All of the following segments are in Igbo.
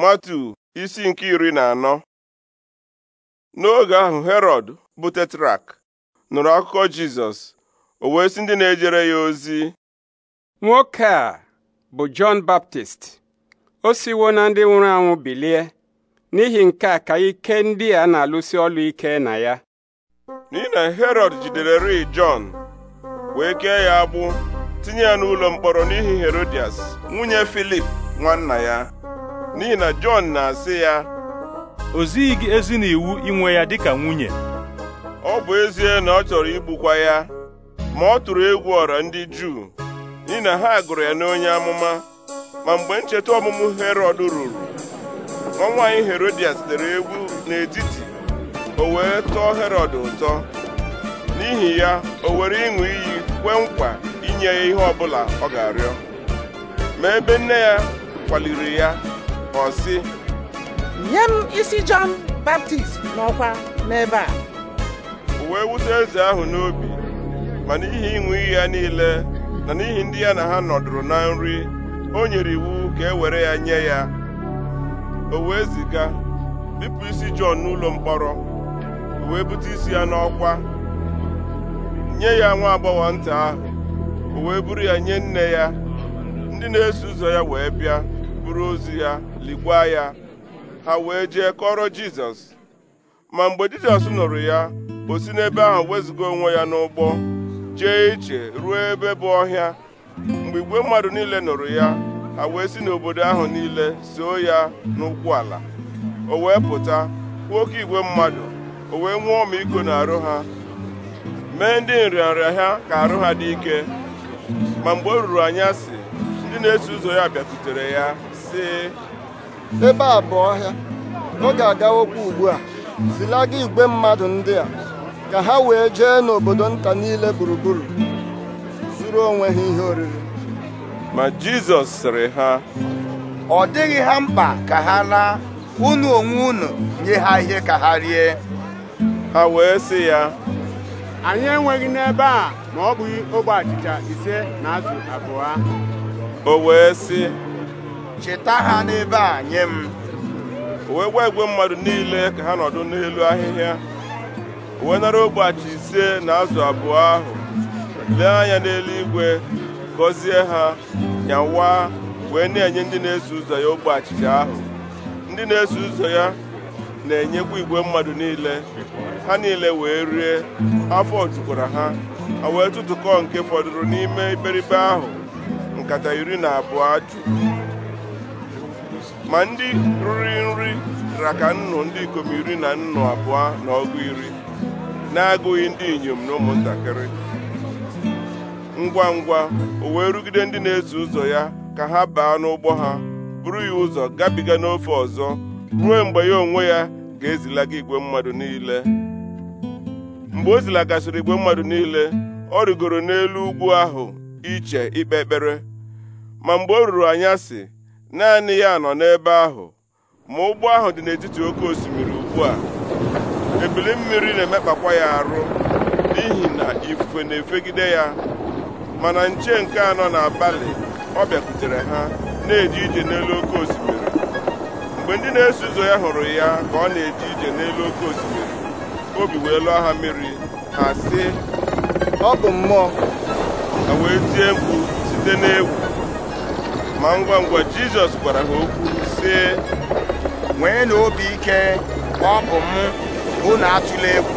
matu isi nke iri na anọ n'oge ahụ herod bụ tetrak nụrụ akụkọ jizọs o wee si ndị na-ejere ya ozi nwoke a bụ jọn baptist o siwo na ndị nwụrụ anwụ bilie n'ihi nke a ka ike ndị a na-alụsi ọlụ ike na ya n'ihi na herọd jidere ri jọn wee kee ya agbụ tinye ya n'ụlọ mkpọrọ n'ihi herodias nwunye filip nwanna ya n'ihi na Jọn na-asị ya o zighị gị ezi na inwe ya dịka nwunye ọ bụ ezie na ọ chọrọ igbukwa ya ma ọ tụrụ egwu ọra ndị Juu n'ihi na ha gụrụ ya n'onye amụma ma mgbe ncheta ọmụmụ herod ruru nwa nwaanyị Herodias dere egwu n'etiti o wee tọọ herod ụtọ n'ihi ya o were ịṅụ iyi kwee nkwa inye ya ihe ọbụla ọ ga-arịọ ma ebe nne ya kwaliri ya ọ si nye m isi Jọn Baptist n'ọkwa n'ebe a wee wute eze ahụ n'obi ma n'ihi ịṅụ iyi ya niile na n'ihi ndị ya na ha nọdụrụ na nri o nyere iwu ka e were ya nye ya o wee ziga bipụ isi Jọn n'ụlọ mkpọrọ o wee bute isi ya n'ọkwa nye ya nwa agbọghọ nta ahụ o wee buru ya nye nne ya ndị na-eso ụzọ ya wee bịa buru ozu ya ligwa ya ha wee jee kọrọ Jizọs ma mgbe Jizọs nụrụ ya o si n'ebe ahụ wezụga onwe ya n'ụgbọ jee iche ruo ebe bụ ọhịa mgbe igwe mmadụ niile nụrụ ya ha wee si n'obodo ahụ niile soo ya n'ụkwụ ala o wee pụta kwuo oke igwe mmadụ o wee nwụọ na arụ ha mee ndị nrịanrịa ha ka arụ ha dị ike ma mgbe o ruru anyasị ndị na-eso ụzọ ya bịatutere ya sị ebe a bụ ọhịa ọ ga-agawokwa ugbu a zilaga igwe mmadụ ndị a ka ha wee jee n'obodo nta niile gburugburu zuru onwe ha ihe oriri ma Jizọs sịrị ha ọ dịghị ha mkpa ka ha laa unu onwe unu nye ha ihe ka ha rie ha wee sị ya anyị enweghị n'ebe a ma ọ bụghị ogbe achịcha ise na azụ abụọ o wee sị cheta ha n'ebe a nye m wee gwa igwe mmadụ niile ka ha nọdụ n'elu ahịhịa wee nara ogbachi ise na azụ abụọ ahụ lee anya n'eluigwe gọzie ha nyawa wee na-enye ndị na-eso ụzọ ya ogbe achịcha ahụ ndị na-eso ụzọ ya na-enyekwa igwe mmadụ niile ha niile wee rie afọ jukwara ha ha wee tụtụkọ nke fọdụrụ n'ime iberibe ahụ nkata iri na abụọ juru ma ndị riri nri ra ka nnụ ndị ikom iri na nnụ abụọ na ọgụ iri na-agụghị ndị inyom na ụmụntakịrị ngwa ngwa o wee rugide ndị na ezu ụzọ ya ka ha baa n'ụgbọ ha buru ya ụzọ gabiga n'ofe ọzọ ruo mgbe ya onwe ya ga-ezilaga igwe mmadụ niile mgbe o zilagasịrị igwe mmadụ niile ọ rigoro n'elu ugwu ahụ iche ikpe ekpere ma mgbe o ruru anyasị naanị ya nọ n'ebe ahụ ma ụgbọ ahụ dị n'etiti oke osimiri ugbu a ebili mmiri na-emekpakwa ya arụ n'ihi na ifufe na-efegide ya mana nche nke anọ n'abalị ọ bịakwutere ha na-eje ije n'elu oke osimiri mgbe ndị na-eso ụzọ ya hụrụ ya ka ọ na eji ije n'elu oke osimiri obi wee lụọ ha mmiri ha sị ọ bụ mmụọ ha wee tie mkpu site n'egwu ma ngwa ngwa jizọs gwara ha okwu sị nwee na obi ike ọ bụ m unu atụla egwu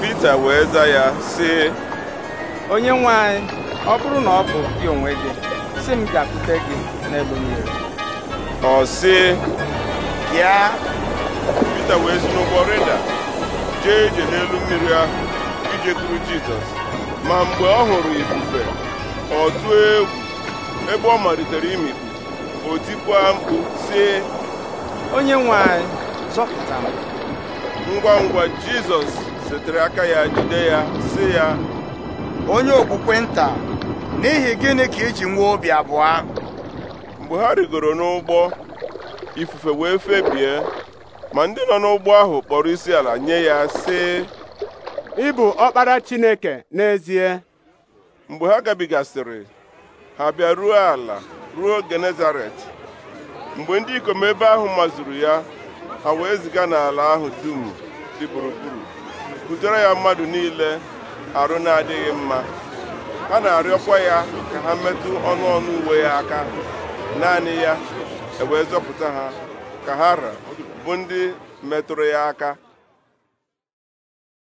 pita wee za ya sị onye nwe anyị ọ bụrụ na ọ bụ gị onwe gị si m bịakwute gị n'elu mmiri ọ sị bịa pita wee si n'ụgbọ reda jee ije n'elu mmiri ahụ ijekwuru jizọs ma mgbe ọ hụrụ ifufe ọ tụọ egwu ebe ọ malitere imikpu o tikwa mkpu sie onye nwe anyị zọpụta ngwa ngwa jizọs setere aka ya jide ya si ya onye okpukpe nta n'ihi gịnị ka iji nwee obi abụọ ahụ mgbe ha rigoro n'ụgbọ ifufe wee febie ma ndị nọ n'ụgbọ ahụ kpọrọ isi ala nye ya si ịbụ ọkpara chineke n'ezie mgbe ha gabigasịrị ha bịa ruo ala ruo genezaret mgbe ndị ikom ebe ahụ mazuru ya ha wee ziga n'ala ahụ dum dị gburugburu butere ya mmadụ niile arụ na-adịghị mma ha na-arịọkwa ya ka ha metụ ọnụ ọnụ uwe ya aka naanị ya ewee zọpụta ha ka ha ra bụ ndị metụrụ ya aka